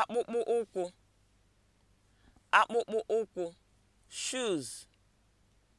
akpụkpọ ụkwụ akpụkpọ ụkwụ shoes